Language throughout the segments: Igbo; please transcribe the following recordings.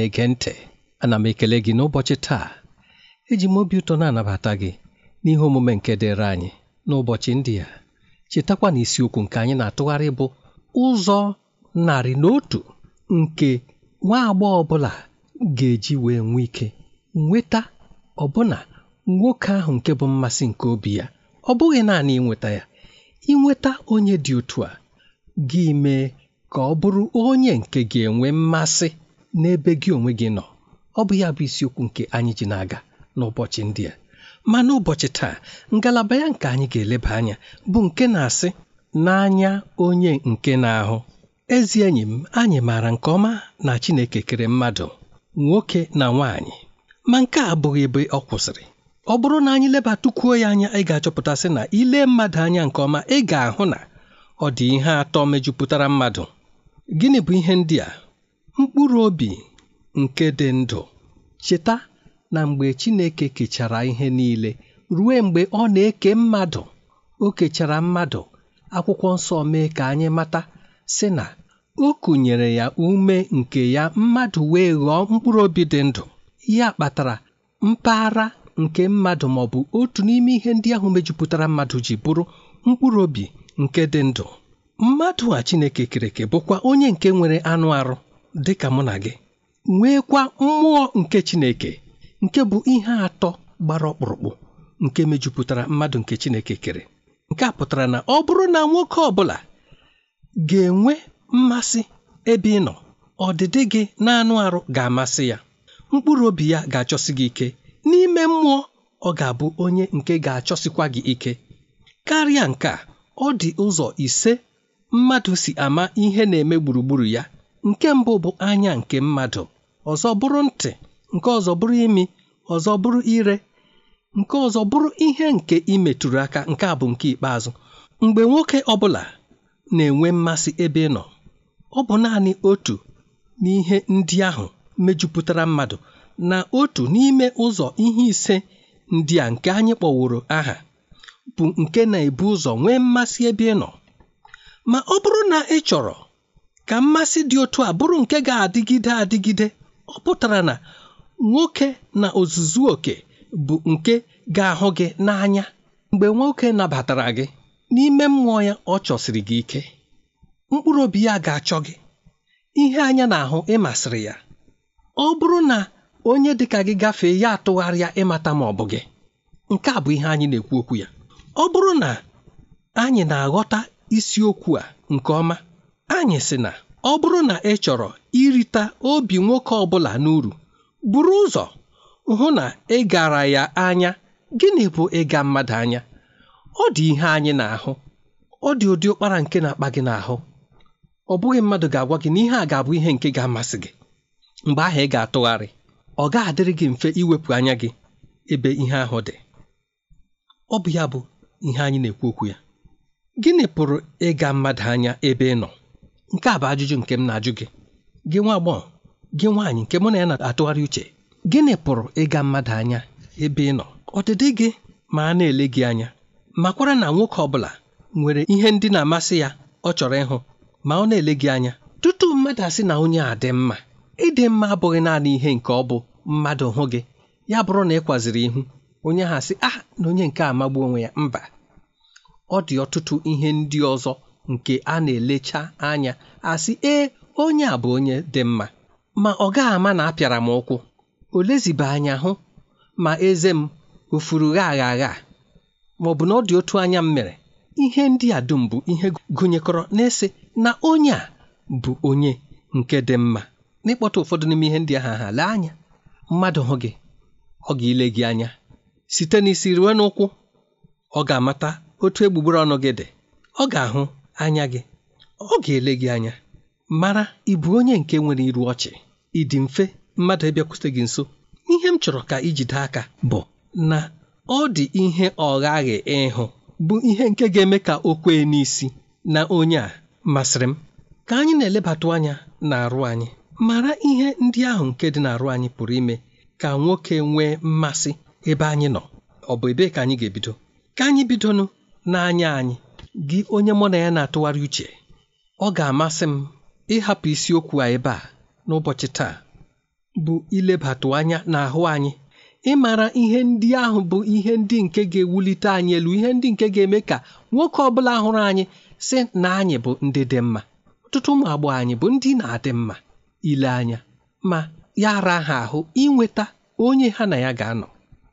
na-ege ntị ana m ekele gị n'ụbọchị taa eji m obi ụtọ na-anabata gị n'ihe omume nke dịrị anyị n'ụbọchị ndị a chetakwa na isiokwu nke anyị na-atụgharị bụ ụzọ narị na otu nke nwa agbọghọ ọbụla ga-eji wee nwee ike nweta ọbụna nwoke ahụ nke bụ mmasị nke obi ya ọ bụghị naanị ịnweta ya ịnweta onye dị otu a gị mee ka ọ bụrụ onye nke ga-enwe mmasị n'ebe gị onwe gị nọ ọ bụ ya bụ isiokwu nke anyị ji na-aga n'ụbọchị ndị a ma n'ụbọchị taa ngalaba ya nke anyị ga-eleba anya bụ nke na-asị n'anya onye nke na-ahụ ezi enyi m anyị maara nke ọma na Chineke kere mmadụ nwoke na nwaanyị ma nke a abụghị ebe ọ kwụsịrị ọ bụrụ na anyị lebatukwuo ya anya ị ga-achọpụtasị na ile mmadụ anya nke ọma ị ga-ahụ na ọ dị ihe atọ mejupụtara mmadụ gịnị bụ ihe ndị a mkpụrụ obi nke dị ndụ cheta na mgbe Chineke kechara ihe niile ruo mgbe ọ na-eke mmadụ o kechara mmadụ akwụkwọ nsọ mee ka anyị mata si na o kụnyere ya ume nke ya mmadụ wee ghọọ mkpụrụ obi dị ndụ ya kpatara mpaghara nke mmadụ ma ọ bụ otu n'ime ihe ndị ahụ mejupụtara mmadụ ji bụrụ mkpụrụ obi nke dị ndụ mmadụ a Chineke kereke bụkwa onye nke nwere anụ arụ dị ka mụ na gị nweekwa mmụọ nke Chineke nke bụ ihe atọ gbara ọkpụrụkpụ nke mejupụtara mmadụ nke Chineke kere nke a pụtara na ọ bụrụ na nwoke ọ bụla ga-enwe mmasị ebe ị nọ ọdịdị gị na-anụ arụ ga-amasị ya mkpụrụ obi ya ga-achọsi gị ike n'ime mmụọ ọ ga-abụ onye nke ga-achọsikwa gị ike karịa nke a ọ dị ụzọ ise mmadụ si ama ihe na-eme gburugburu ya nke mbụ bụ anya nke mmadụ ọzọ bụrụ ntị nke ọzọ bụrụ imi ọzọ bụrụ ire nke ọzọ bụrụ ihe nke imetụrụ aka nke a bụ nke ikpeazụ mgbe nwoke ọbụla na-enwe mmasị ebe ị nọ ọ bụ naanị otu n'ihe ndị ahụ mejupụtara mmadụ na otu n'ime ụzọ ihe ise ndị a nke anyị kpọworo aha bụ nke na-ebu ụzọ nwee mmasị ebe ị nọ ma ọ bụrụ na ị chọrọ ka mmasị dị otu a bụrụ nke ga-adịgide adịgide ọ pụtara na nwoke na ozuzu oke bụ nke ga-ahụ gị n'anya mgbe nwoke nabatara gị n'ime mmụọ ya ọ chọsiri gị ike mkpụrụ obi ya ga-achọ gị ihe anya na-ahụ ịmasịrị ya ọ bụrụ na onye dịka gị gafee ya atụgharịa ịmata ma ọ bụ gị nke a bụ ihe anyị na-ekwu okwu ya ọ bụrụ na anyị na-aghọta isiokwu a nke ọma anyị sị na ọ bụrụ na ị chọrọ irita obi nwoke ọ bụla n'uru buru ụzọ hụ na ị gara ya anya gịnị bụ ịga mmadụ anya ọ dị ihe anyị na-ahụ ọ dị ụdị ụkpara nke na-akpa gị n'ahụ ọ bụghị mmadụ ga-agwa gị na ihe a ga-abụ ihe nke ga-amasị gị mgbe ahụ ị ga-atụgharị ọ ga-adịrị gị mfe iwepụ anya gị ebe ihe ahụ dị ọ bụ ya bụ ihe anyị na-ekwu okwu ya gịnị pụrụ ịga mmadụ anya ebe ị nọ nke a bụ ajụjụ nke m na-ajụ gị gị nwa agbọghọ gị nwaanyị nke mụ na ya na-atụgharị uche gịnị pụrụ ịga mmadụ anya ebe ị nọ ọdịdị gị ma a na-ele gị anya makwara na nwoke ọ bụla nwere ihe ndị na-amasị ya ọ chọrọ ịhụ ma ọ na-ele gị anya tutu mmadụ asị na onye a dị mma ịdị mma abụghị naanị ihe nke ọ bụ mmadụ hụ gị ya bụrụ na ị kwaziri ihu onye ha asị ah na onye nke amagbu onwe ya mba ọ dị ọtụtụ ihe ndị ọzọ nke a na-elecha anya asị ee onye a bụ onye dị mma ma ọ gaghị ama na apịara m ụkwụ o lezibe anya hụ ma eze m ofuru gha agha agha ma ọ bụ na ọ dị otu anya m mere ihe ndị a dum bụ ihe gụnyekọrọ na-ese na onye a bụ onye nke dị mma n'ịkpọta ụfọdụ n'ime ihe ndị ahụ ha lee anya mmadụ hụ gị ọ ga-ile gị anya site n'isi ruo n'ụkwụ ọ ga-amata otu egbugbere ọnụ gị dị ọ ga-ahụ anya gị ọ ga-ele gị anya mara ịbụ bụ onye nke nwere iru ọchị ị dị mfe mmadụ ịbịakwute gị nso ihe m chọrọ ka ijide aka bụ na ọ dị ihe ọghaghị ịhụ bụ ihe nke ga-eme ka o kwee n'isi na onye a masịrị m ka anyị na-elebatụ anya na-arụ anyị mara ihe ndị ahụ nke dị n'arụ anyị pụrụ ime ka nwoke nwee mmasị ebe anyị nọ ọ bụ ebee ka anyị ga-ebido ka anyị bidonụ n'anya anyị gị onye mụ na ya na-atụgharị uche ọ ga-amasị m ịhapụ isiokwu a ebe a n'ụbọchị taa bụ ilebatụ anya n'ahụ anyị ịmara ihe ndị ahụ bụ ihe ndị nke ga-ewulite anyị elu ihe ndị nke ga-eme ka nwoke ọ bụla hụrụ anyị sị na anyị bụ ndị dị mma ọtụtụ ụmụ agbọghọ anyị bụ ndị na-adị mma ile anya ma ya ara ha ahụ inweta onye ha na ya ga-anọ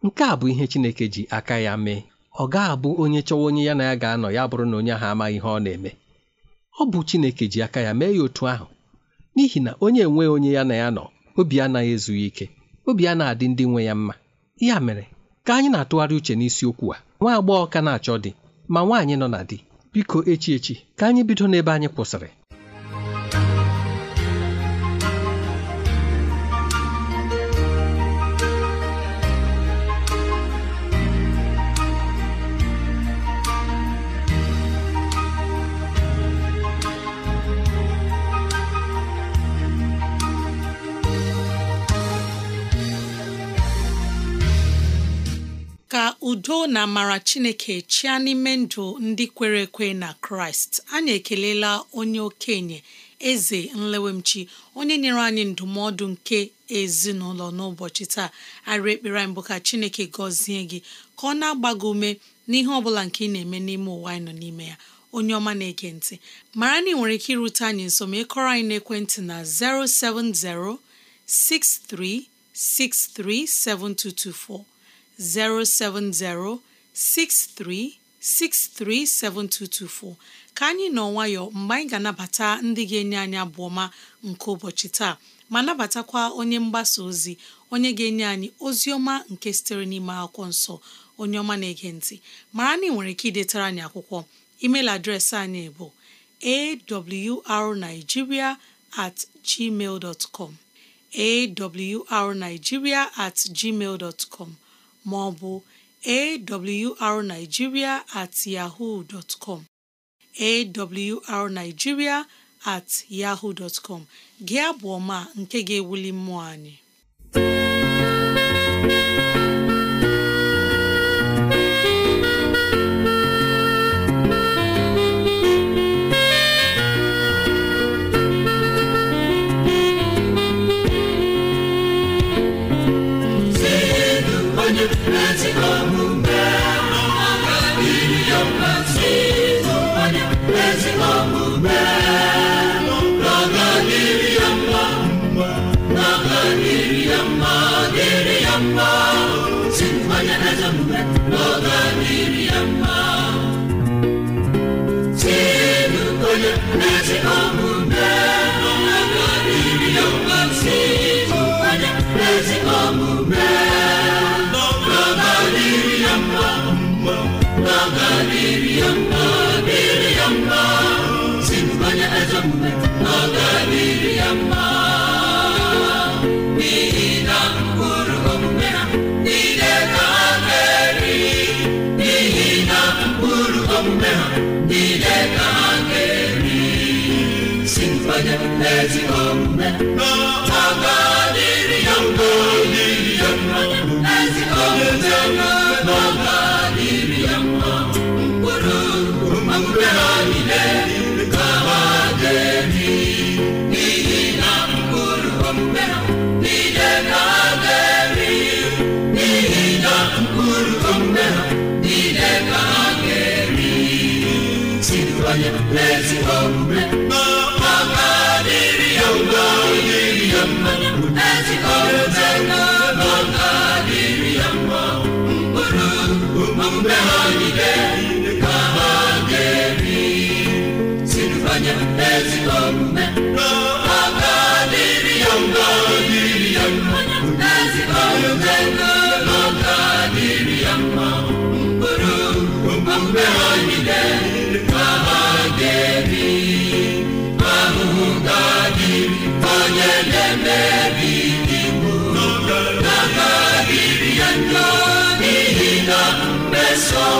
nke a bụ ihe Chineke ji aka ya mee ọ ga-abụ onye chọwa onye ya na ya ga-anọ ya bụrụ na onye ahụ amaghị ihe ọ na-eme ọ bụ Chineke ji aka ya mee ya otu ahụ n'ihi na onye enweghị onye ya na ya nọ obi anaghị ezughị ike obi a na-adị ndị nwe ya mma ya mere ka anyị na-atụgharị uche n'isiokwu a nwa agbọghọ ka na-achọ dị, ma nwaanyị nọ na di biko echi echi ka anyị bido n'ebe anyị kwụsịrị udo na amara chineke chịa n'ime ndụ ndị kwere ekwe na kraịst anyị ekelela onye okenye eze nlewemchi onye nyere anyị ndụmọdụ nke ezinụlọ n'ụbọchị taa arị ekpere anyị bụ ka chineke gọzie gị ka ọ na-agba gị ume n'ihe ọ bụla nke ị na-eme n'ime ụwa anyị nọ n'ime ya onye ọma na-ege ntị mara na ị nwere ike irute anyị nso ma ịkọrọ anyị n'ekwentị na 070 6363 7224 070 07063637224 ka anyị nọ nwayọ mgbe anyị ga-anabata ndị ga-enye anyị abụ ọma nke ụbọchị taa ma nabatakwa onye mgbasa ozi onye ga-enye anyị ozi ọma nke sitere n'ime akwụkwọ nsọ onye ọma na-ege ntị mara na ị nwere ike idetara anyị akwụkwọ email adreesị anyị bụ arigiria at gmail com awrnigeria at gmail com maọbụ ọ bụ awrnigeria at yahoo dot com awrnigeria at yahoo dot gị abụ ọma nke ga-ewuli mmụọ anyị jimanya ataadụ ka si mkpanye n'ezighọmme ha ga-adịrị ya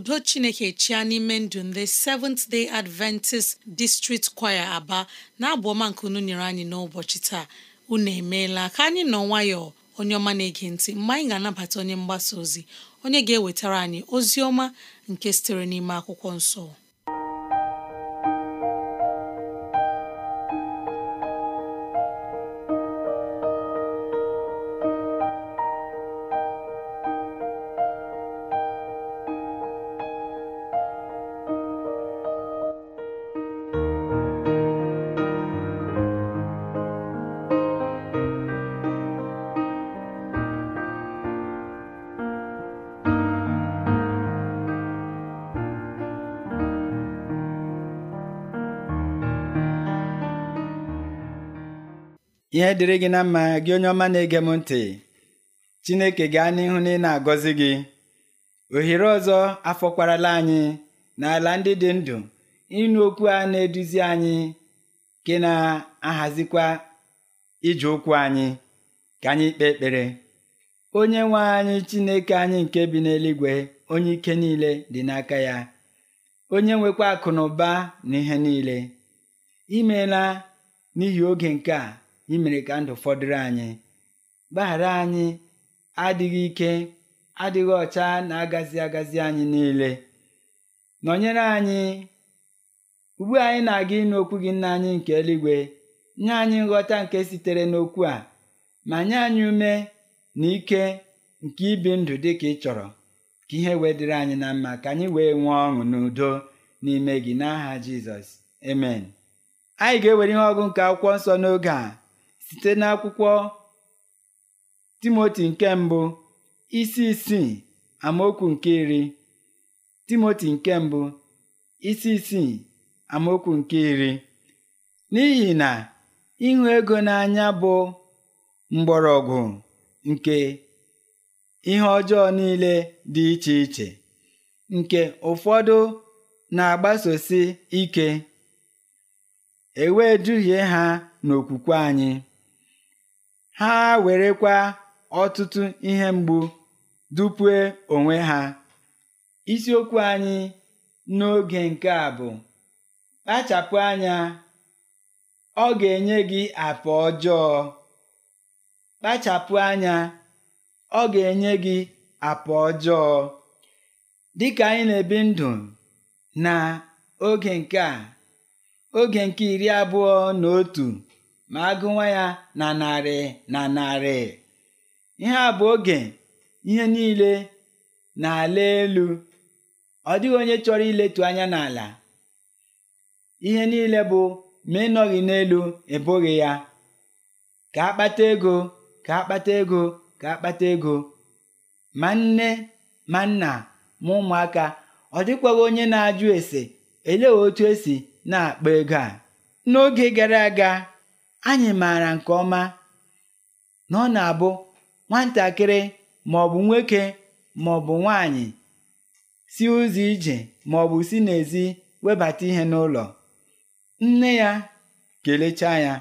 udo chineke chia n'ime ndụ ndị Seventh Day Adventist District Choir Aba na-abụ ọma nke unu nyere anyị n'ụbọchị taa unu emeela ka anyị nọ nwayọọ onye ọma na-ege ntị mgbe anyị ga-anabata onye mgbasa ozi onye ga-ewetara anyị ozi ọma nke sitere n'ime akwụkwọ nsọ ihe dịrị gị na mma gị onye ọma na-ege m ntị Chineke gaa n'ihu na ị na-agọzi gị ohere ọzọ afọkwarala anyị n'ala ndị dị ndụ ịnụ okwu a na-eduzi anyị ke na-ahazikwa ije ụkwụ anyị ka anyị kpee ekpere onye nwe anyị Chineke anyị nke bi n'eluigwe onye ike niile dị n'aka ya onye nwekwa akụ na ụba na ihe niile imeela n'ihi oge nke a imere ka ndụ fọdụrụ anyị gbaghara anyị adịghị ike adịghị ọcha na-agazi agazi anyị niile nọnyere anyị ugbu anyị na-aga ịnụ okwu gị nna anyị nke eluigwe nye anyị nghọta nke sitere n'okwu a ma nye anyị ume na ike nke ibi ndụ dị ka ị chọrọ ka ihe wee anyị na mma ka anyị wee nwee ọṅụ n'udo n'ime gị n'aha Jizọs emen anyị ga-ewere ihe ọgụ nke akwụkwọ nsọ n'oge a site n'akwụkwọ Timoti nke mbụ isi isii amaokwu nke iri Timoti nke mbụ isi isii amaokwu nke iri n'ihi na ịhụ ego n'anya bụ mgbọrọgwụ nke ihe ọjọọ niile dị iche iche nke ụfọdụ na-agbasosi ike e wee duhie ha n'okwukwe anyị ha werekwa ọtụtụ ihe mgbu dupue onwe ha isiokwu anyị n'oge nke a bụ kpachapụ anya ọ ga-enye gị apa ọjọọ kpachapụ anya ọ ga-enye gị apa ọjọọ dịka anyị na-ebi ndụ na oge nke a oge nke iri abụọ na otu ma agụwa ya na narị na narị ihe a bụ oge ihe niile na-ala elu ọ dịghị onye chọrọ iletu anya n'ala ihe niile bụ ma ịnọghị n'elu ebughị ya ka akpata ego ka akpata ego ka akpata ego ma nne ma nna ma ụmụaka ọ dịkwaghị onye na-ajụ ese elee otu esi na-akpa ego a n'oge gara aga anyị maara nke ọma na ọ na-abụ nwatakịrị maọbụ maọbụ nwoke maọbụ nwanyị si ụzọ ije maọbụ si n'ezi webata ihe n'ụlọ nne ya kelechaa ya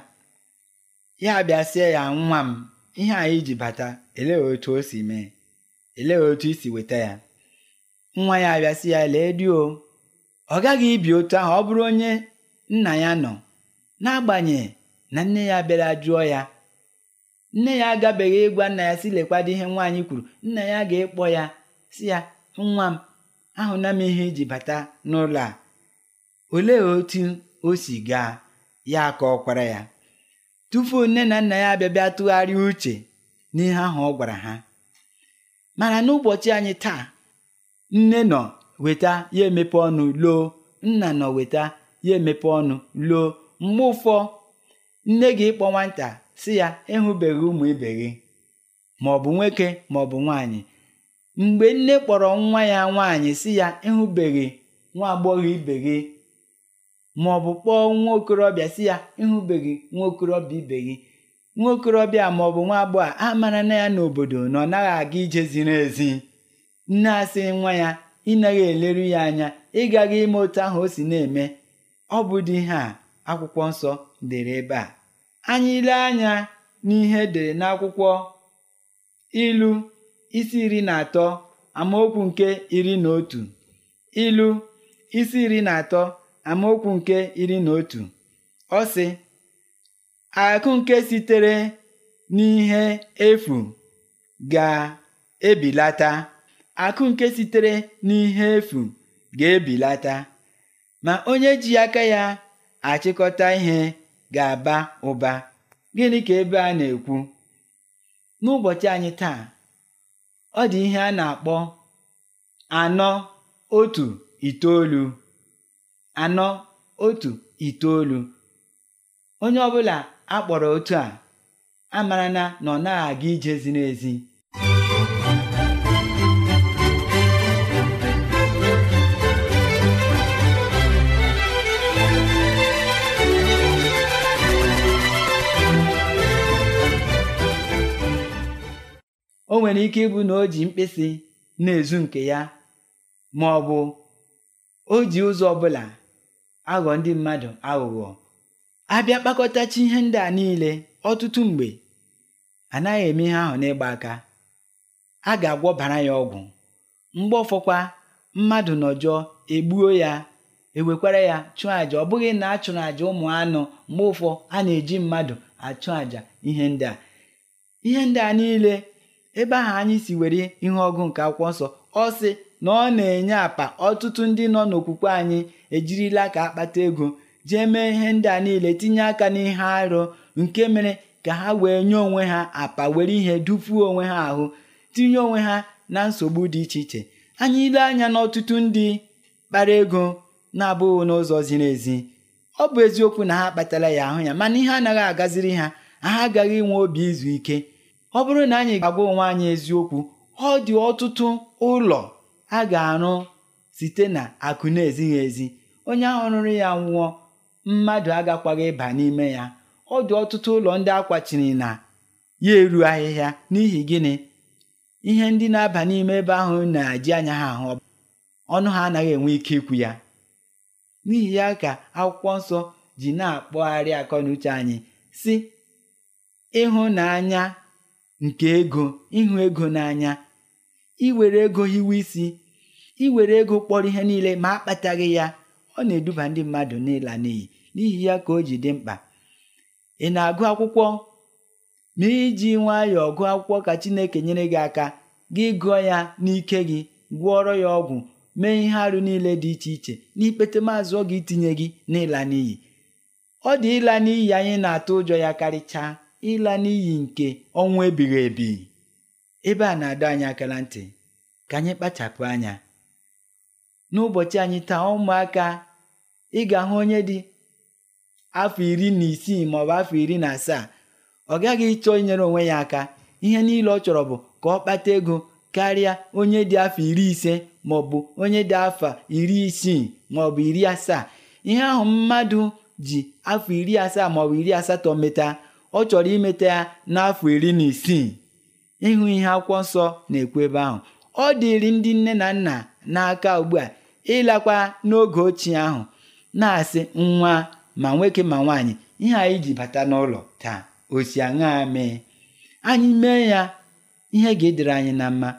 ya bịasịa ya nwa m ihe anyị ji bata elee otu o si mee elee otu isi weta ya nwa ya abịasị ya lee di ọ gaghị ibi otu ahụ ọ bụrụ onye nna ya nọ n'agbanyeghị na nne ya bịara jụọ ya nne ya agabeghị ịgwa nna ya si lekwado ihe nwaanyị kwuru nna ya ga-ekpọ ya si ya nwa m ahụna m ihe iji bata n'ụlọ a olee otu o si gaa ya ka ọ ya tupu nne na nna ya abịabịa tụgharị tụgharịa uche n'ihe ahụ ọ gwara ha mana n'ụbọchị anyị taa nne nọ weta ya emepe ọnụ loo nna nọ weta ya emepe ọnụ loo mgbe ụfọ nne gị kpọ nwata si ya ịhụbeghị ụmụ ibe gị maọbụ nwoke maọbụ nwaanyị mgbe nne kpọrọ nwa ya nwaanyị si ya ịhụbeghị nwa agbọghọ ibe gị maọbụ kpọọ nwa okorobịa si ya ịhụbeghị nwa okorobịa ibe gị nwa okorobịa maọbụ nwa agbọghọ a mara na ya n'obodo na ọ naghị aga ije ziri ezi nne asị nwa ya ịnaghị eleru ya anya ịgaghị ime otu ahụ o si na-eme ọ bụ dị ihe a akwụkwọ nsọ dere ebe a anyị ile anya n'ihe dere n'akwụkwọ ilu isi iri na atọ amaokwu nke iri na otu ilu isi iri na atọ amaokwu nke iri na otu ọ sị efu ga-ebilata akụ nke sitere n'ihe efu ga-ebilata ma onye ji aka ya achịkọta ihe ga-aba ụba gịnị ka ebe a na-ekwu n'ụbọchị anyị taa ọ dị ihe a na-akpọ anọ otu itoolu anọ otu itoolu onye ọbụla akpọrọ otu a mara na ọ na aga ije ziri ezi o nwere ike ịbụ na o ji mkpịsị na-ezu nke ya ma ọ bụ o ji ụzọ ọbụla aghọ ndị mmadụ aghụghọ abịa kpakọtachi ihe ndị a niile ọtụtụ mgbe anaghị eme ihe ahụ n'ịgba aka a ga-agwọbara ya ọgwụ mgbe ọfọkwa mmadụ nọjọọ egbuo ya ewekwara ya chụọ àjà ọ bụghị na a chụrụ àjà ụmụ anụ mgbe ụfọ a na-eji mmadụ achụ àjà ihe ndị a ihe ndị a niile ebe ahụ anyị si were ihe ọgụ nke akwụkwọ nsọ ọ sị na ọ na-enye apa ọtụtụ ndị nọ n'okwukwe anyị ejirila ka akpata ego jee mee ihe ndị a niile tinye aka n'ihe arụ nke mere ka ha wee nye onwe ha apa were ihe dufuo onwe ha ahụ tinye onwe ha na nsogbu dị iche iche anyị ile anya n'ọtụtụ ndị kpara ego na-abụghị n'ụzọ ziri ezi ọ bụ eziokwu na ha kpatara ya ahụ ya mana ihe anaghị agaziri ha ha agaghị inwe obi izu ike ọ bụrụ na anyị ga-agwa onwe anyị eziokwu ọ dị ọtụtụ ụlọ a ga-arụ site na akụ na-ezighị ezi onye ahụ rụrụ ya nwụọ mmadụ agakwaghị ịba n'ime ya ọ dị ọtụtụ ụlọ ndị akwachiri na ya eru ahịhịa n'ihi gịnị ihe ndị na-aba n'ime ebe ahụ na-eji anya ha ahụ ọnụ ha anaghị enwe ike ikwu ya n'ihi ya ka akwụkwọ nsọ ji na-akpọgharị akọ na uche anyị si ịhụnanya nke ego ịhụ ego n'anya iwere ego hiwe isi iwere ego kpọrọ ihe niile ma akpataghị ya ọ na-eduba ndị mmadụ n'ịla n'iyi n'ihi ya ka o ji dị mkpa ị na-agụ akwụkwọ ma iji nwayọọ gụọ akwụkwọ ka Chineke nyere gị aka gị gụọ ya n'ike gị gwọọrọ ya ọgwụ mee ihe arụ niile dị iche iche n'ikpete maazụ ọ ga itinye gị n'ịla n'iyi ọ dị ịla n'iyi anyị na-atụ ụjọ ya karịchaa ịla n'iyi nke ọnwụ ebighị ebi ebe a na-adọ anyị aka ntị ka anyị kpachapụ anya n'ụbọchị anyị taa ụmụaka ị ga-ahụ onye dị afọ iri na isii maọbụ afọ iri na asaa ọ gaghị ịchọ inyere onwe ya aka ihe niile ọ chọrọ bụ ka ọ kpata ego karịa onye dị afọ iri ise maọbụ onye dị afọ iri isii maọbụ iri asaa ihe ahụ mmadụ ji afọ iri asaa maọbụ iri asatọ meta ọ chọrọ imeta ya n'afọ iri na isii ịhụ ihe akwụkwọ nsọ na-ekwu ebe ahụ ọ dịrị ndị nne na nna n'aka ugbu a ịlakwa n'oge ochie ahụ na-asị nwa ma nwoke ma nwaanyị ihe anyị ji bata n'ụlọ taa osi aṅa mee anyị mee ya ihe ga-edere anyị na mma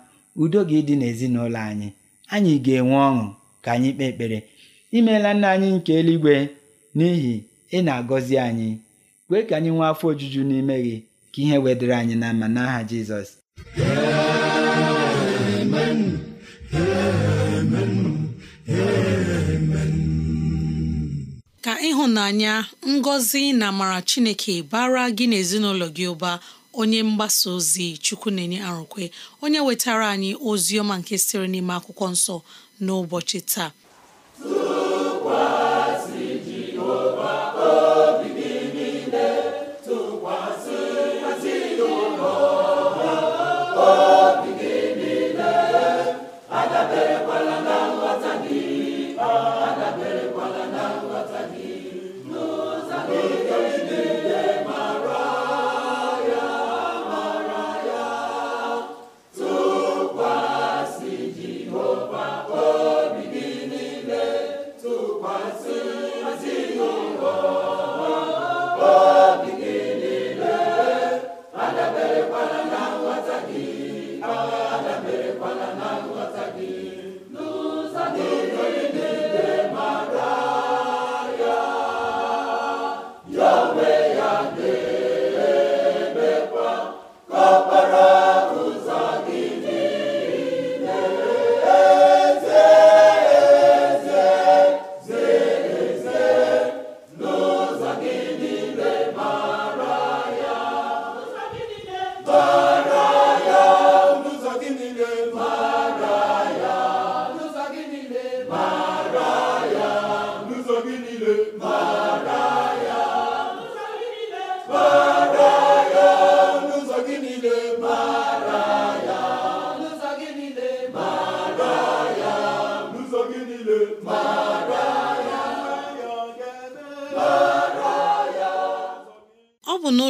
udo ga-edị n'ezinụlọ anyị anyị ga-enwe ọṅụ ka anyị kpee ekpere imeela nna anyị nke eluigwe n'ihi ị na-agọzi anyị kwee ka anyị nwee afọ ojuju n'ime gị ka ihe wedịrị anyị na mma n'aha Jizọs ka ịhụnanya ngọzi na amara Chineke bara gị na ezinụlọ gị ụba onye mgbasa ozi chukwu na-enye arụkwe onye wetara anyị ozi ọma nke siri n'ime akwụkwọ nsọ n'ụbọchị taa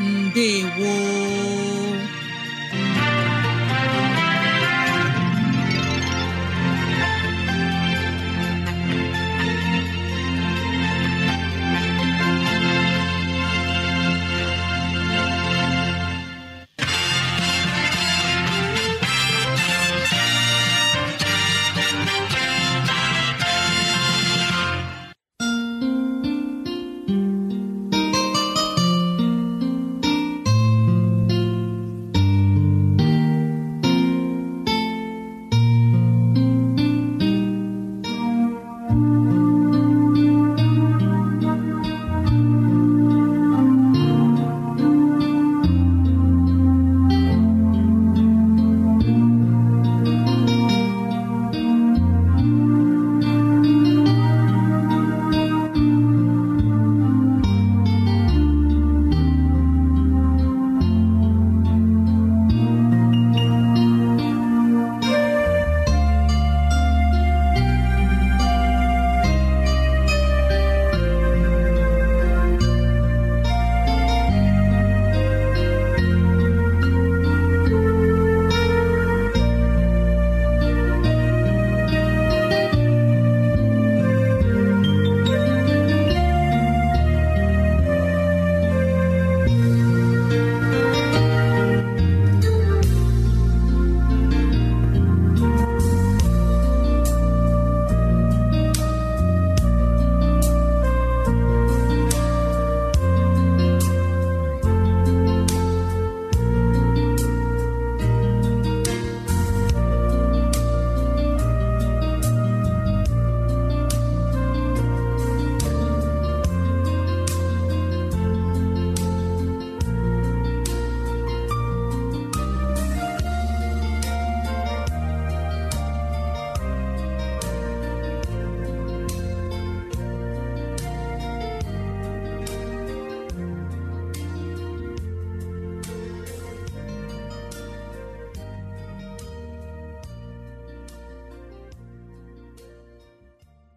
ndewo